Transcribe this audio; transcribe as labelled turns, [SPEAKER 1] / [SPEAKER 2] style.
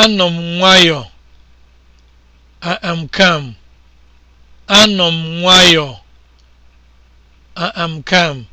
[SPEAKER 1] Anọ m nwayọọ, I am Anọ m nwayọọ, I am